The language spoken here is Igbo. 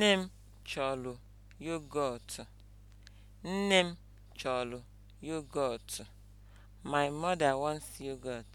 Nne m chọlụ yogurt Nne m chọlụ yogurt My mother wants yogurt.